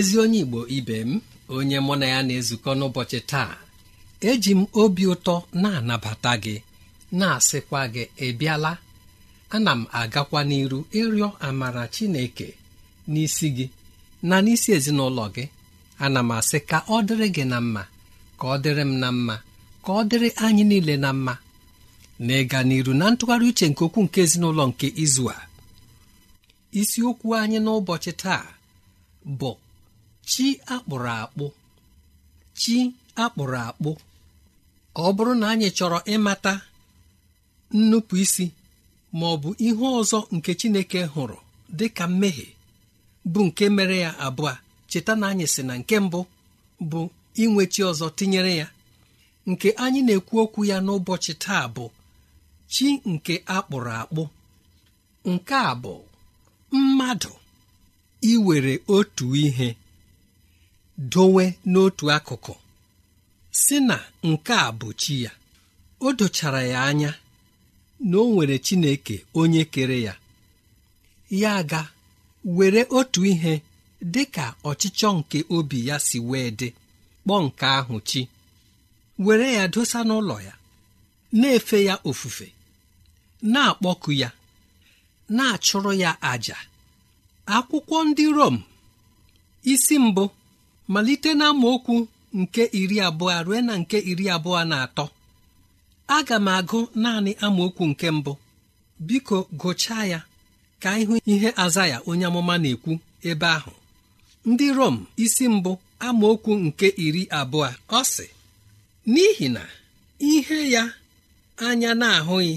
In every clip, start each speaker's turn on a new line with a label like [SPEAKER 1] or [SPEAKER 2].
[SPEAKER 1] ezi onye igbo ibe m onye mụ na ya na-ezukọ n'ụbọchị taa eji m obi ụtọ na-anabata gị na-asịkwa gị ị bịala ana m agakwa n'iru ịrịọ amara chineke n'isi gị na n'isi ezinụlọ gị ana m asị ka ọ dịrị gị na mma ka ọ dịrị m na mma ka ọ dịrị anyị niile na mma na ịga n'iru na ntụgharị uche nke okwu nke ezinụlọ nke izu a isiokwu anyị n'ụbọchị taa bụ chi akpụrụ akpụ chi akpụrụ akpụ ọ bụrụ na anyị chọrọ ịmata nnupụ isi ma ọ bụ ihe ọzọ nke chineke hụrụ dị ka mmehie bụ nke mere ya abụọ cheta na anyị si na nke mbụ bụ inwe chi ọzọ tinyere ya nke anyị na-ekwu okwu ya n'ụbọchị taa bụ chi nke akpụrụ akpụ nke a bụ mmadụ iwere otu ihe dowe n'otu akụkụ si na nke a bụ chi ya o dochara ya anya na o nwere chineke onye kere ya ya ga were otu ihe dị ka ọchịchọ nke obi ya si wee dị kpọọ nke ahụ chi were ya dosa n'ụlọ ya na-efe ya ofufe na-akpọku ya na-achụrụ ya àjà akwụkwọ ndị Rom isi mbụ malite na okwu nke iri abụọ ruo na nke iri abụọ na atọ aga m agụ naanị amaokwu nke mbụ biko gụchaa ya ka ịhụ ihe aza ya onye amụma na-ekwu ebe ahụ ndị Rom isi mbụ amaokwu nke iri abụọ ọ sị n'ihi na ihe ya anya na-ahụghị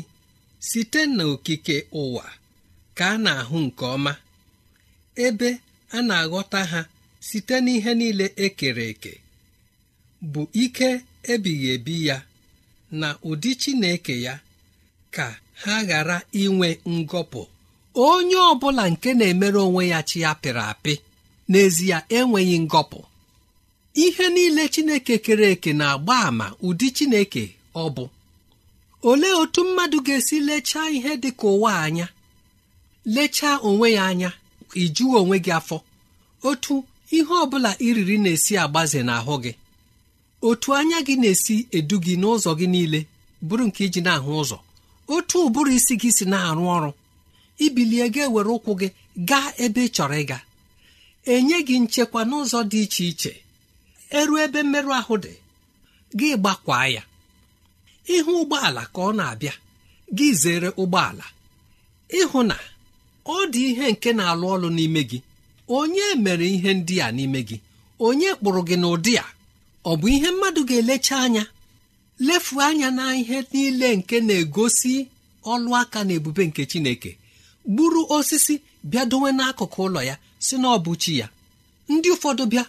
[SPEAKER 1] site n'okike ụwa ka a na-ahụ nke ọma ebe a na-aghọta ha site n'ihe niile ekere eke bụ ike ebighị ebi ya na ụdị Chineke ya ka ha ghara inwe ngọpụ onye ọbụla nke na-emere onwe ya chi ya pịrị apị n'ezie enweghị ngọpụ ihe niile Chineke kere eke na-agba àmà ụdị Chineke ọ bụ olee otu mmadụ ga-esi lechaa ihe dị ka ụwa anya lechaa onwe ya anya ijuwe onwe gị afọ otu ihe ọ bụla iriri na-esi agbaze n'ahụ gị otu anya gị na-esi edu gị n'ụzọ gị niile bụrụ nke iji na-ahụ ụzọ otu ụbụrụ isi gị si na-arụ ọrụ ibilie gị were ụkwụ gị gaa ebe ị chọrọ ịga enye gị nchekwa n'ụzọ dị iche iche eruo ebe mmerụ ahụ dị gị gbakwaa ya ịhụ ụgbọala ka ọ na-abịa gị zere ụgbọala ịhụ na ọ dị ihe nke na-alụ ọlụ n'ime gị onye mere ihe ndị a n'ime gị onye kpụrụ gị n'ụdị a ọ bụ ihe mmadụ ga-elecha anya lefu anya na ihe niile nke na-egosi ọlụ aka na ebube nke chineke gburu osisi bịa dowe n'akụkụ ụlọ ya si na ọ chi ya ndị ụfọdụ bịa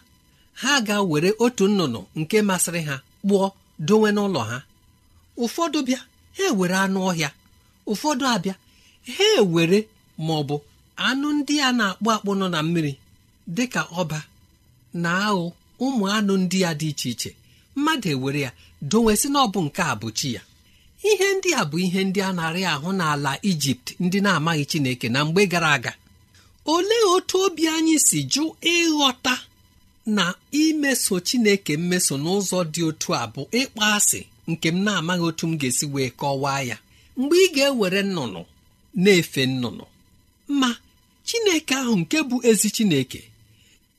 [SPEAKER 1] ha ga-were otu nnụnụ nke masịrị ha kpụọ dowe n'ụlọ ha ụfọdụ bịa ha ewere anụ ọhịa ụfọdụ abịa ha ewere ma bụ anụ ndị a na-akpụ akpụ nọ na mmiri dị ka ọba na-aghụ ụmụ anụ ndị a dị iche iche mmadụ ewere ya dowesị na ọ bụ nke a bụ chi ya ihe ndị a bụ ihe ndị a na-arị ahụ n'ala ijipt ndị na-amaghị chineke na mgbe gara aga olee otu obi anyị si jụ ịghọta na imeso chineke mmeso n'ụzọ dị otu a bụ ịkpọ asị nke m na-amaghị otu m ga-esi wee kọwaa ya mgbe ị ga-ewere nnụnụ na-efe nnụnụ ma chineke ahụ nke bụ ezi chineke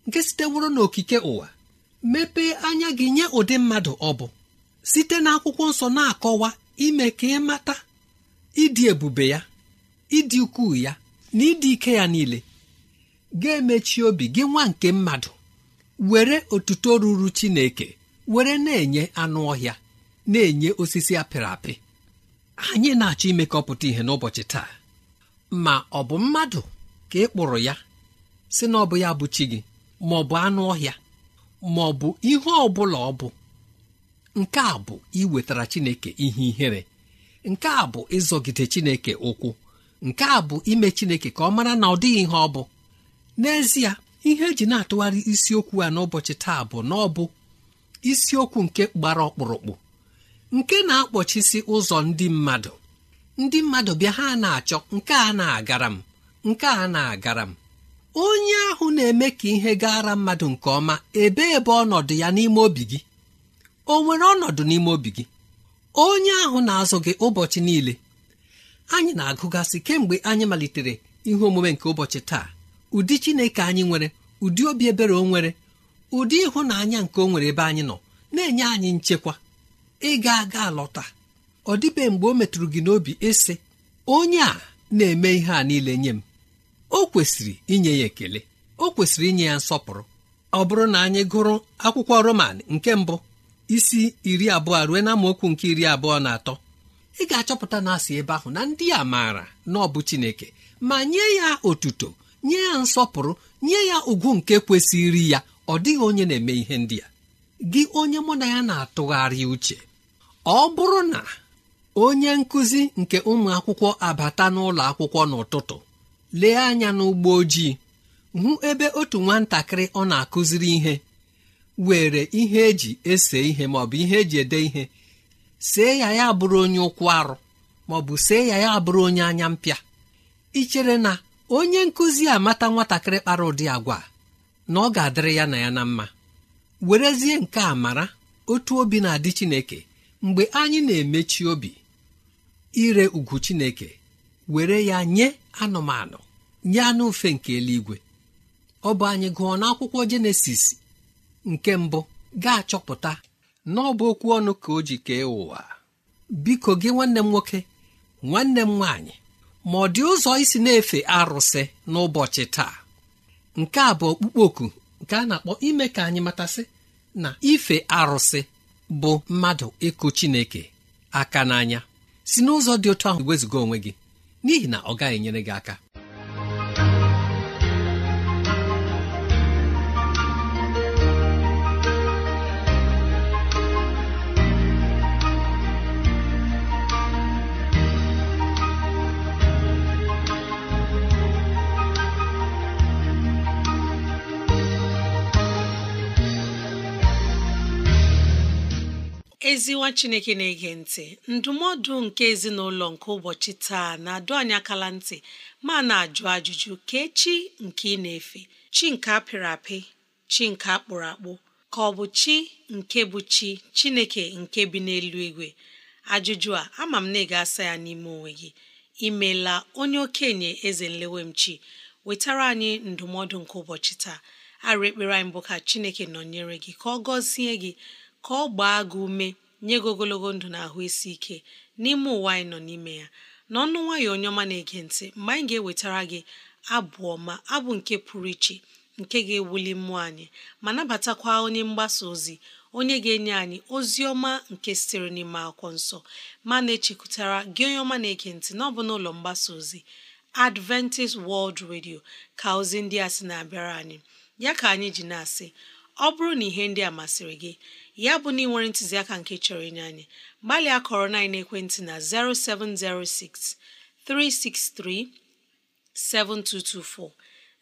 [SPEAKER 1] nke siteworo n'okike ụwa mepee anya gị nye ụdị mmadụ ọ bụ site n'akwụkwọ nsọ na-akọwa ime ka ị mata ịdị ebube ya ịdị ukwuu ya na ịdị ike ya niile ga-emechi obi gị nwa nke mmadụ were otuto ruru chineke were na-enye anụ ọhịa na-enye osisi apịrị apị anyị na-achọ imekọpụta ihe n'ụbọchị taa ma ọ bụ mmadụ ka ị kpụrụ ya si na ọ bụ ya bụ chi gị ma ọ bụ anụ ọhịa ma ọ bụ ihe ọ bụla ọ bụ nke a bụ iwetara chineke ihe ihere nke a bụ ịzọgide chineke ụkwụ nke a bụ ime chineke ka ọ mara na ọ dịghị ihe ọ bụ n'ezie ihe eji na-atụgharị isiokwu a n'ụbọchị taa bụ na ọ bụ isiokwu nke gbara ọkpụrụkpụ nke na-akpọchisi ụzọ ndị mmadụ ndị mmadụ bịa ha na-achọ nke a na-agara m nke a na-agara m onye ahụ na-eme ka ihe gaara mmadụ nke ọma ebee ebe ọnọdụ ya n'ime obi gị o nwere ọnọdụ n'ime obi gị onye ahụ na-azụ gị ụbọchị niile anyị na-agụgasị kemgbe anyị malitere ihe omume nke ụbọchị taa ụdị chineke anyị nwere ụdị obi ebere o nwere ụdị ịhụnanya nke o nwere ebe anyị nọ na-enye anyị nchekwa ịga aga alọta ọ dịbe mgbe o metụrụ gị n'obi ịsị onye a na-eme ihe a niile nye m o kwesịrị inye ya ekele o kwesịrị inye ya nsọpụrụ ọ bụrụ na anyị gụrụ akwụkwọ roman nke mbụ isi iri abụọ ruo na amaokwu nke iri abụọ na atọ ị ga-achọpụta na asị ebe ahụ na ndị a maara na ọ bụ Chineke ma nye ya otuto nye ya nsọpụrụ nye ya ugwu nke kwesịrị ya ọ dịghị onye na-eme ihe ndị a gị onye mụ na ya na-atụgharị uche ọ bụrụ na onye nkụzi nke ụmụ akwụkwọ abata n'ụlọ akwụkwọ n'ụtụtụ lee anya n'ụgbọ ojii hụ ebe otu nwatakịrị ọ na-akụziri ihe were ihe eji ese ihe maọbụ ihe eji ede ihe see ya ya bụrụ onye ụkwụ arụ maọbụ see ya ya bụrụ onye anya mpịa ichere na onye nkụzi amata nwatakịrị kpara ụdị agwa na ọ ga-adịrị ya na ya na mma werezie nke a mara otu obi na-adị chineke mgbe anyị na-emechi obi ire ugwu chineke were ya nye anụmanụ nye anụ mfe nke eluigwe ọ bụ anyị gụọ n'akwụkwọ jenesis nke mbụ ga-achọpụta na ọ bụ okwu ọnụ ka o ji kee ụwa biko gị nwanne m nwoke nwanne m nwaanyị ma ọ dị ụzọ isi na-efe arụsị n'ụbọchị taa nke a bụ ọkpụkpọ oku nke a na-akpọ ime ka anyị matasị na ife arụsị bụ mmadụ ịkụ chineke aka n'anya si n'ụzọ dị otu ahụ wezụga onwe gị n'ihi na ọ gaghị enyere gị aka
[SPEAKER 2] ezi nwa chineke na-ege ntị ndụmọdụ nke ezinụlọ nke ụbọchị taa na-adụ anyị akala ntị ma na-ajụ ajụjụ ka echi nke ị na-efe chi nke apịrị apị chi nke akpụrụ akpụ ka ọ bụ chi nke bụ chi chineke nke bi n'elu igwe ajụjụ a ama m na ị asa ya n'ime onwe gị imeela onye okenye eze nlewemchi wetara anyị ndụmọdụ nke ụbọchị taa arụ ekpere anyị bụ ka chineke nọnyere gị ka ọ gọzie gị ka ọ gbaa gị ume nye gị ogologo ndụ na ahụ isi ike n'ime ụwa anyị nọ n'ime ya n'ọnụ nwayọ onye ọma na-ege ntị mgbe anyị ga-ewetara gị abụ ọma abụ nke pụrụ iche nke ga-ewuli mmụọ anyị ma nabatakwa onye mgbasa ozi onye ga-enye anyị ozi ọma nke sitere n'ime akwụkwọ nsọ ma na-echekwutara gị onye ọma na-ege ntị na ọ n'ụlọ mgbasa ozi Adventist World Radio ka ozi ndị a sị na-abịara anyị ya ka anyị ji na-asị ọ bụrụ na ihe ndị a masịrị gị ya bụ na ị nwere ntụziaka nke chọrọ inye anyị gbalịa kọrọ na na ekwentị na 0706 363 7224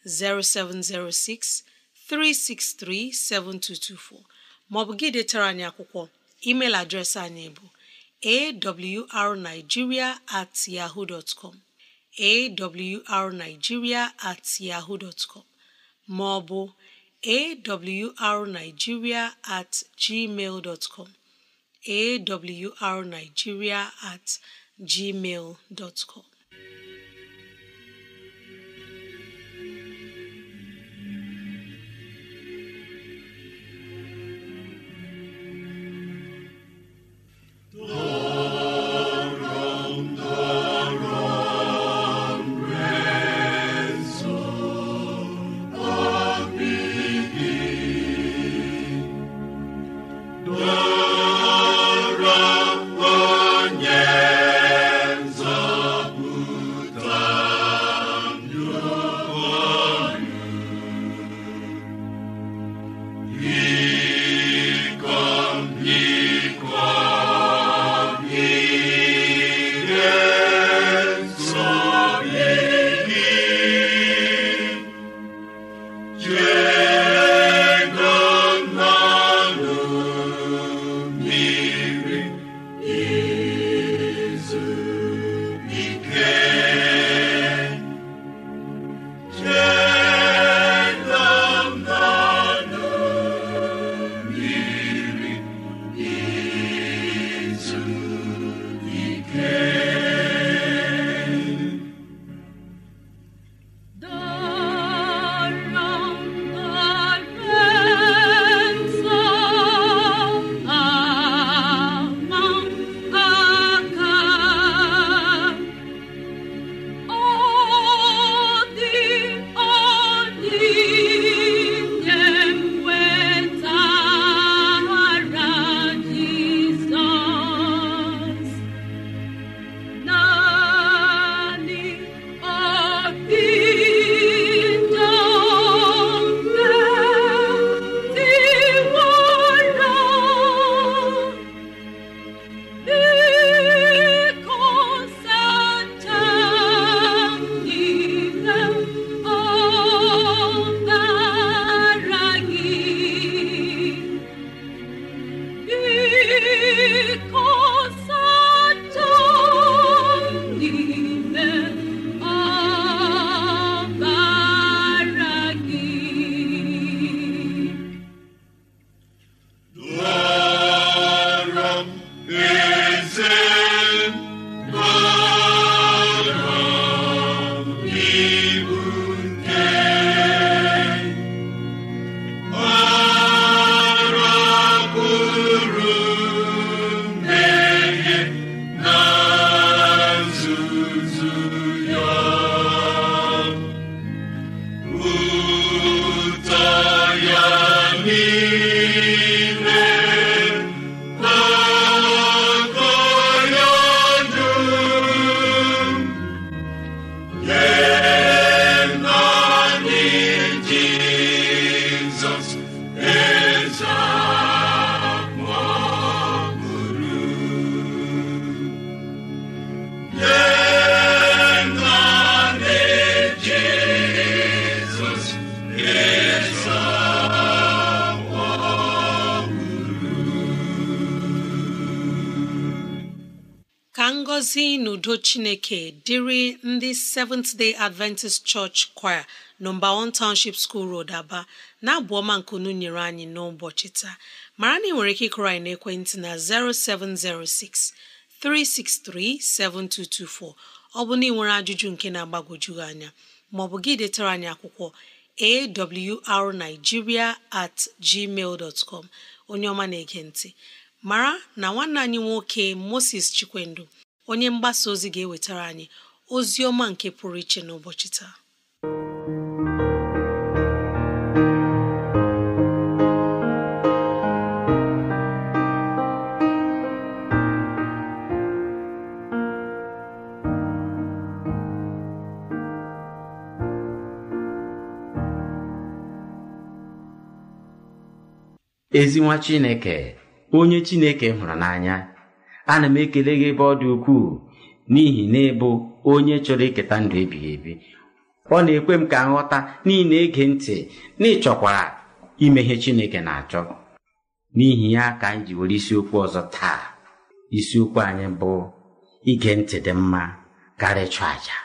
[SPEAKER 2] 0706 363 7224 maọbụ gị detara anyị akwụkwọ email adreesị anyị bụ awrnigeria at yahoo dot awrnigeria at maọbụ awrnigeria at gmail dot com awrnigeria at gmail dot com Oh ka ngọzi n'udo chineke dịrị ndị Seventh Day Adventist Church Choir nọmba 1 Township School Road Aba na-abụ ọma nkunu nyere anyị n'ụbọchị taa mara na ị nwere ike ịkụrọ anyị n'ekwentị na 0706 ọ bụ na ị nwere ajụjụ nke na-agbagwoju anya maọbụ gị detara anyị akwụkwọ awrnigeria at gmail onye ọma na-ege ntị mara na nwanne anyị nwoke moses Chikwendo onye mgbasa ozi ga-ewetara anyị ozi ọma nke pụrụ iche n'ụbọchị taa
[SPEAKER 3] ezi chineke onye chineke hụrụ n'anya ana m ekele gị ebe ọ dị ukwuu n'ihi na ịbụ onye chọrọ iketa ndụ ebighị ebi ọ na-ekwe m ka nghọta niile ege ntị na ịchọkwara ime ihe chineke na-achọ n'ihi ya ka anyị ji were isiokwu ọzọ taa isiokwu anyị bụ ige ntị dị mma karịa ịchụ àjà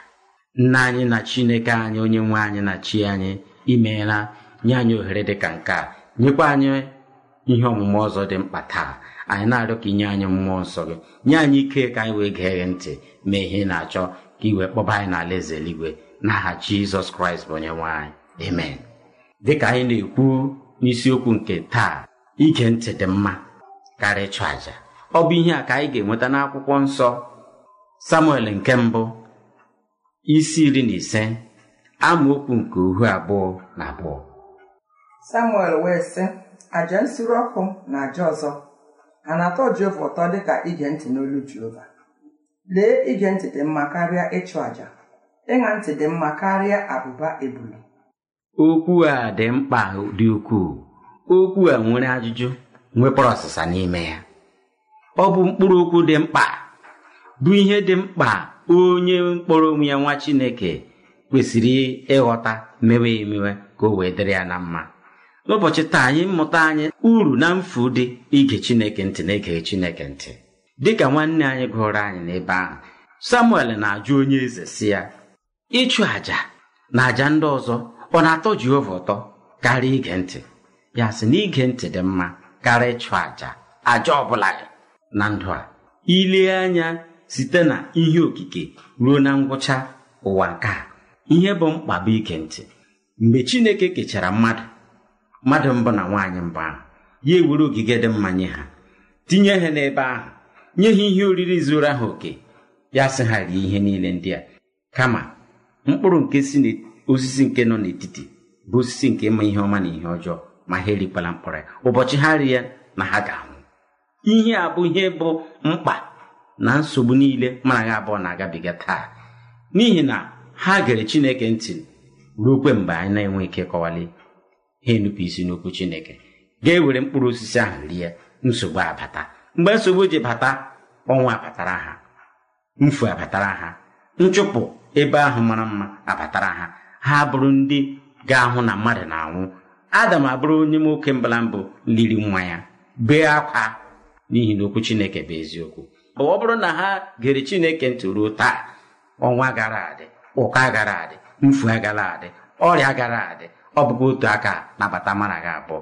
[SPEAKER 3] nna anyị na chineke anyị onye nwe anyị na chi anyị imeela nye anyị ohere dị ka nke a nyekwa anyị ihe ọmụma ọzọ dị mkpa taa anyị na-arịọ ka inye anyị mmụọ nsọ gị nye anyị ike ka anyị wee gee gị ntị mee ihe na-achọ ka iwe kpọba anyị n'ala eze eluigwe n'aha jizọs kraịst bụ onye nwaanyị anyị amen ka anyị na-ekwu n'isiokwu nke taa ige ntị dị mma karịa ịchụ àjà ọ bụ ihe a ka anyị ga-enweta n'akwụkwọ nsọ samuel nke mbụ isi iri na ise amaokwu nke uhu abụọ na abụọ
[SPEAKER 1] samuel wee sị àjà nsuru ọkụ na àjà ọzọ a na-atọ Jehova ụtọ dịka ige ntị n'olu Jehova lee ige ntị dị mma karịa ịchụ àjà ịṅa ntị dị mma karịa abụba ebulu
[SPEAKER 3] okwu a dị mkpa dị ukwuu okwu a nwere ajụjụ nwekwara ọsịsa n'ime ya ọ bụ mkpụrụ okwu dị mkpa bụ ihe dị mkpa onye mkpọrọ onwe ya nwa Chineke kwesịrị ịghọta mewe emewe ka o wee dịrị ya na mma n'ụbọchị taa anyị mmụta anyị uru na mfu dị ige chineke ntị na ige chineke ntị dịka nwanne anyị gụrụ anyị n'ebe ahụ samuel na-ajụ onye eze si ya ịchụ àja na àjà ndị ọzọ ọ na-atọ jehova ụtọ karịa ige ntị ya sị na ige ntị dị mma karịa ịchụ àjà àjà ọ bụla na ndụ a ilee anya site na ihe okike ruo na ngwụcha ụwa nke a ihe bụ mkpa bụ ige ntị mgbe chineke kechara mmadụ mmadụ mbụ na nwaanyị mbụ ahụ ya ewere ogige dị mma nye ha tinye ha n'ebe ahụ nye ha ihe oriri zuru ahụ oke ya sị ha rie ihe niile ndị a kama mkpụrụ nke si n'osisi nke nọ n'etiti bụ osisi nke ịma ihe ọma na ihe ọjọọ ma ha erikwala mkpụrụ ya ụbọchị ha ri ya na ha ga-anwụ ihe a bụ ihe bụ mkpa na nsogbu niile mana ha abụọ na-agabiga taa n'ihi na ha gere chineke ntị ruokwe mgbe anyị na-enwe ike kọwali ha enupụ isi n'okwu chineke ga-ewere mkpụrụ osisi ahụ rie nsogbu abata mgbe nsogbu ji bata ọnwa abatara ha mfu abatara ha nchụpụ ebe ahụ mara mma abatara ha ha bụrụ ndị ga-ahụ na mmadụ na-anwụ adam abụrụ onye nwoke mbala mbụ liri nwa ya bee akwa n'ihi na okwu chineke bụ eziokwu ọ bụrụ na ha gere chineke ntị ruo taa ọnwa gara adị ụka gara adị mfu agara adị ọrịa gara adị ọ bụkwa otu aka nabata mara gị abụọ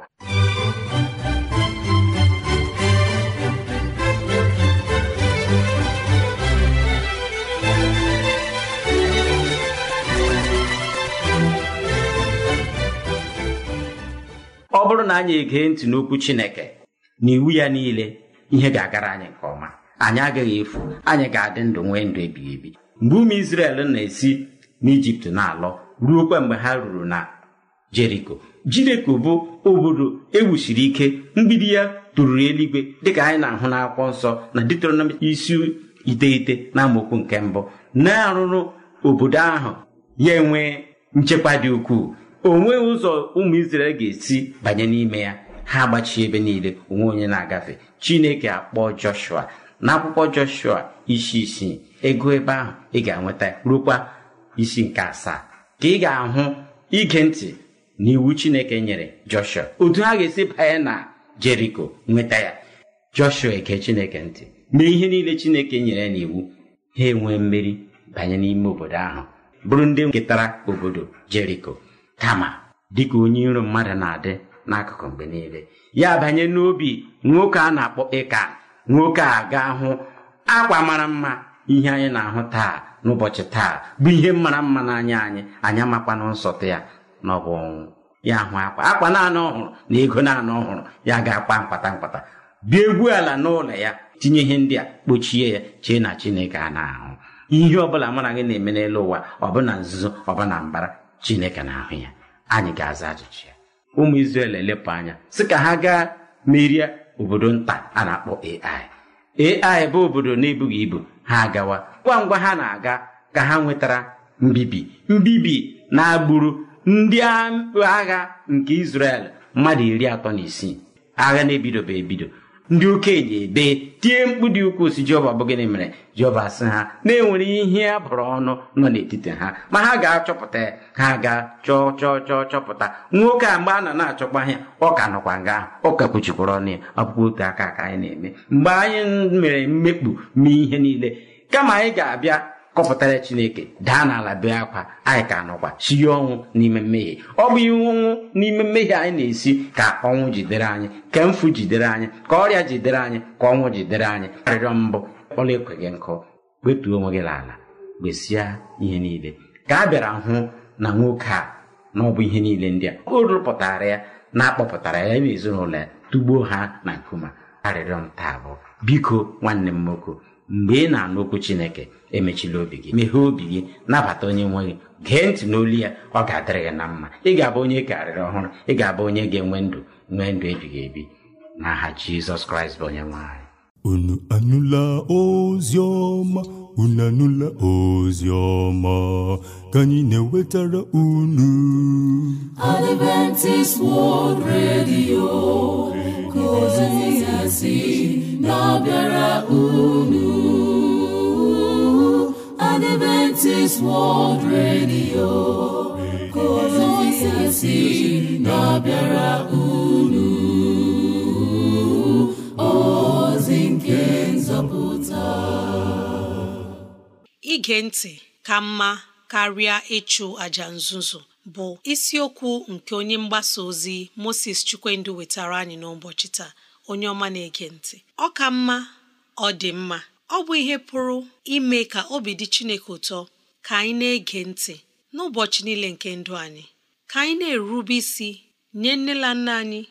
[SPEAKER 3] ọ bụrụ na anyị egee ntị n'okwu Chineke na iwu ya niile ihe ga-agara anyị nke ọma anyị agaghị efu anyị ga-adị ndụ nwee ndụ ebighị ebi mgbe ụmụ isrel na-esi n'Ijipt na ruo ruokwa mgbe ha ruru na jeriko jeriko bụ obodo ewusiri ike mgbidi ya tụrụrụ eluigwe dịka anyị na-ahụ n'akwụkwọ nsọ na Deuteronomi isi iteghete na amaokwu nke mbụ na-arụrụ obodo ahụ ya enwee nchekwa dị ukwuu onweghị ụzọ ụmụ israel ga-esi banye n'ime ya ha gbachie ebe niile onwe onye na-agafe Chineke akpọ Joshua n'akwụkwọ Joshua isi isii ego ebe ahụ ị ga-enweta rukwa isi nke asaa ka ị ga-ahụ ige ntị n'iwu chineke nyere joshua otu ha ga-esi banye na jeriko nweta ya joshua eke chineke ntị mee ihe niile chineke nyere ya n'iwu ha enwee mmeri banye n'ime obodo ahụ bụrụ ndị ketara obodo jeriko kama dịka onye iro mmadụ na-adị n'akụkụ mgbe niile ya banye n'obi nwoke a na-akpọ ịka nwoke a ga hụ akwa mara mma ihe anyị na-ahụ taa n'ụbọchị taa bụ ihe mara mma n'anya anyị anyị amakwana nsọtụ ya n'ọgwụ ọnwụ ya hụ akwa akwa naanị ọhụrụ na ego naanị ọhụrụ ya ga-akpa mkpata mkpata bịa egwu ala n'ụlọ ya tinye ihe ndị a kpochie ya chee na chineke a na-ahụ ihe ọ mụ mara gị na-eme n'elu ụwa ọbụna nzuzo ọbụna mbara chineke na-ahụ ya anyị ga-aza ajụjụ ya ụmụ Izrel elepụ anya sị ka ha gaa merie obodo nta a na-akpọ ai ai bụ obodo na-ebughị ibu ha agawa ngwa ngwa ha na-aga ka ha nwetara mbibi mbibi na agbụrụ ndị agha nke Israel mmadụ iri atọ na isii agha na bụ ebido ndị okenye ebe tie mkpu dị ukwuu si Jehova bụ gịnị mere jeova sị ha na-enwere ihe a bụrụ ọnụ nọ n'etiti ha ma ha ga-achọpụta ha ga-chọọ chọọ chọọ chọpụta nwoke a mgbe a nọ na-achọkwa anya ọ ka nọkwa nga ahụ ọ ka kpuchikwara ọnụ ya ọkpụkpọ otu aka ka anyị na-eme mgbe anyị mere mmekpu mee ihe niile kama anyị ga-abịa kọpụtara chineke daa n'ala bee akwa anyị ka nọkwa sie ọnwụ n'ime mmehie ọ bụ ihe ọnwụ n'ime mmehie anyị na-esi ka ọnwụ jidere anyị ka mfu jidere anyị ka ọrịa jidere anyị ka ọnwụ jidere anyị arịrịọ mbụ ọla ekweghị nkụ wetuo onwe gị n'ala gwesia ihe niile ka a bịara hụ na nwoke a na ọ bụ ihe niile ndị a o rụpụtara ya na-akpọpụtara ya na ezinụlọ ya tugbuo ha na nkume arịrịọ m taa bụ biko nwanne m nwoke mgbe ị na-anụ okwu chineke emechila obi gị meghee obi gị nabata onye nwe gị gee ntị n'olu ya ọ ga-adịrị gị na mma ị ga-abụ onye karịrị ọhụrụ ị ga-abụ onye ga-enwe ndụ nwee ndụ ebighị ebi n'aha jizọs kraịst bụ onye nwanyị unu anụla ozi ọma unu anụla ozi ọma ka anyị na-ewetara unu Adventist World Radio
[SPEAKER 4] sị na ọ bịara unu ka na ọ bịara unu ozi nke
[SPEAKER 2] nzọpụta ige ntị ka mma karịa ịchụ àjà nzuzo bụ isiokwu nke onye mgbasa ozi Moses Chukwuendụ wetara anyị n'ụbọchị taa onye ọma na-ege ntị ọ ka mma ọ dị mma ọ bụ ihe pụrụ ime ka obi dị Chineke ụtọ ka anyị na-ege ntị n'ụbọchị niile nke ndụ anyị ka anyị na-erube isi nye nne na nna anyị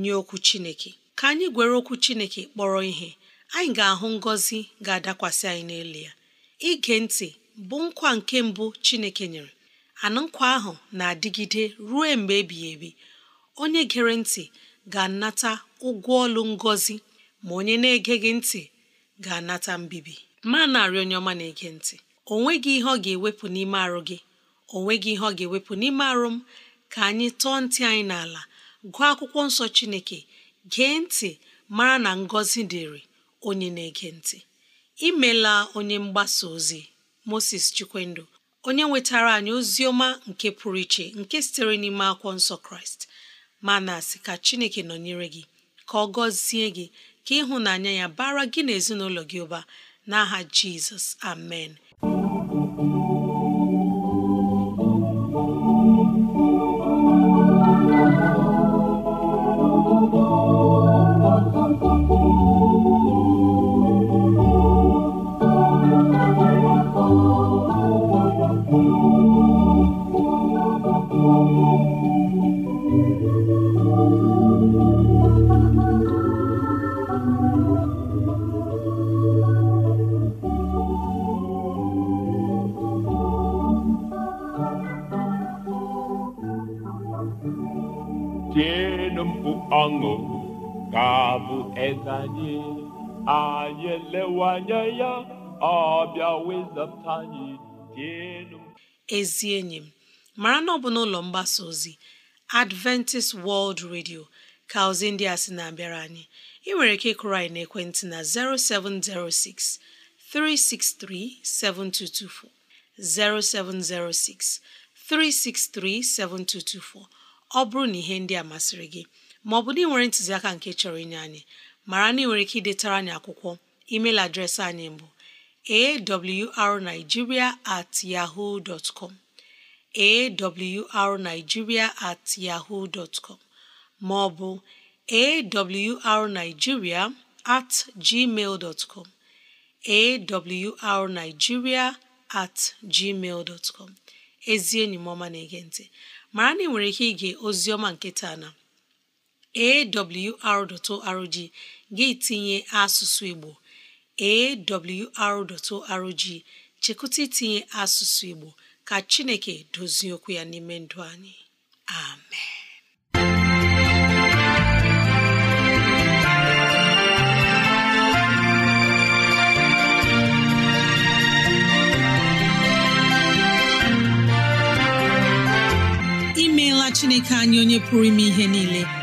[SPEAKER 2] nye okwu Chineke ka anyị gwere okwu Chineke kpọrọ ihe anyị ga-ahụ ngọzi ga-adakwasị anyị n'elu ya ige ntị bụ nkwa nke mbụ Chineke nyere anụ ahụ na-adịgide ruo mgbe ebighị ebi onye gere ntị ga-anata ụgwọ ọlụ ngọzi ma onye na-ege gị ntị ga-anata mbibi ma narị onye ọma na-ege ntị o nweghị ihe ọ ga-ewepụ n'ime arụ gị o nweghị ihe ọ ga-ewepụ n'ime arụ m ka anyị tọọ ntị anyị n'ala gụọ akwụkwọ nsọ Chineke gee ntị mara na ngọzi dịrị onye na-ege ntị imela onye mgbasa ozi Moses Chikwendo onye nwetara anyị ozi ọma nke pụrụ iche nke sitere n'ime akwụkwọ nsọ Kraịst ma na-asị ka Chineke nọnyere gị ka ọ gọzie gị ka ịhụnanya ya bara gị na ezinụlọ gị ụba n'aha Jizọs amen
[SPEAKER 1] lewe anya ya ọbịa bịa wezata anyị dị elu
[SPEAKER 2] ezi enyi m mara na ọ bụ n'ụlọ mgbasa ozi Adventist World Radio ka ozi ndị a sị na-abịara anyị ị nwere ike ịkụrụ anyị n'ekwentị na 0706 363 7224 0706 363 7224 ọ bụrụ na ihe ndị a masịrị gị maọbụ na ị nwere ntụziaka nke chọrọ inye anyị mara na ị nwere ike idetara anyị akwụkwọ email adreesị anyị bụ awrnigeria at yahoo dot com awrnigeria at yahoo dot com ma at gmail dot com awrnigeria at gmail dot ezi enyi m ọma na-ege ntị mara na ị nwere ike ige ozi ọma nke taa na awr.org gị tinye asụsụ Igbo awr.org chekụta itinye asụsụ Igbo ka Chineke dozie okwu ya n'ime ndụ anyị amen imeela Chineke anyị onye pụrụ ime ihe niile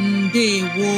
[SPEAKER 2] ndewo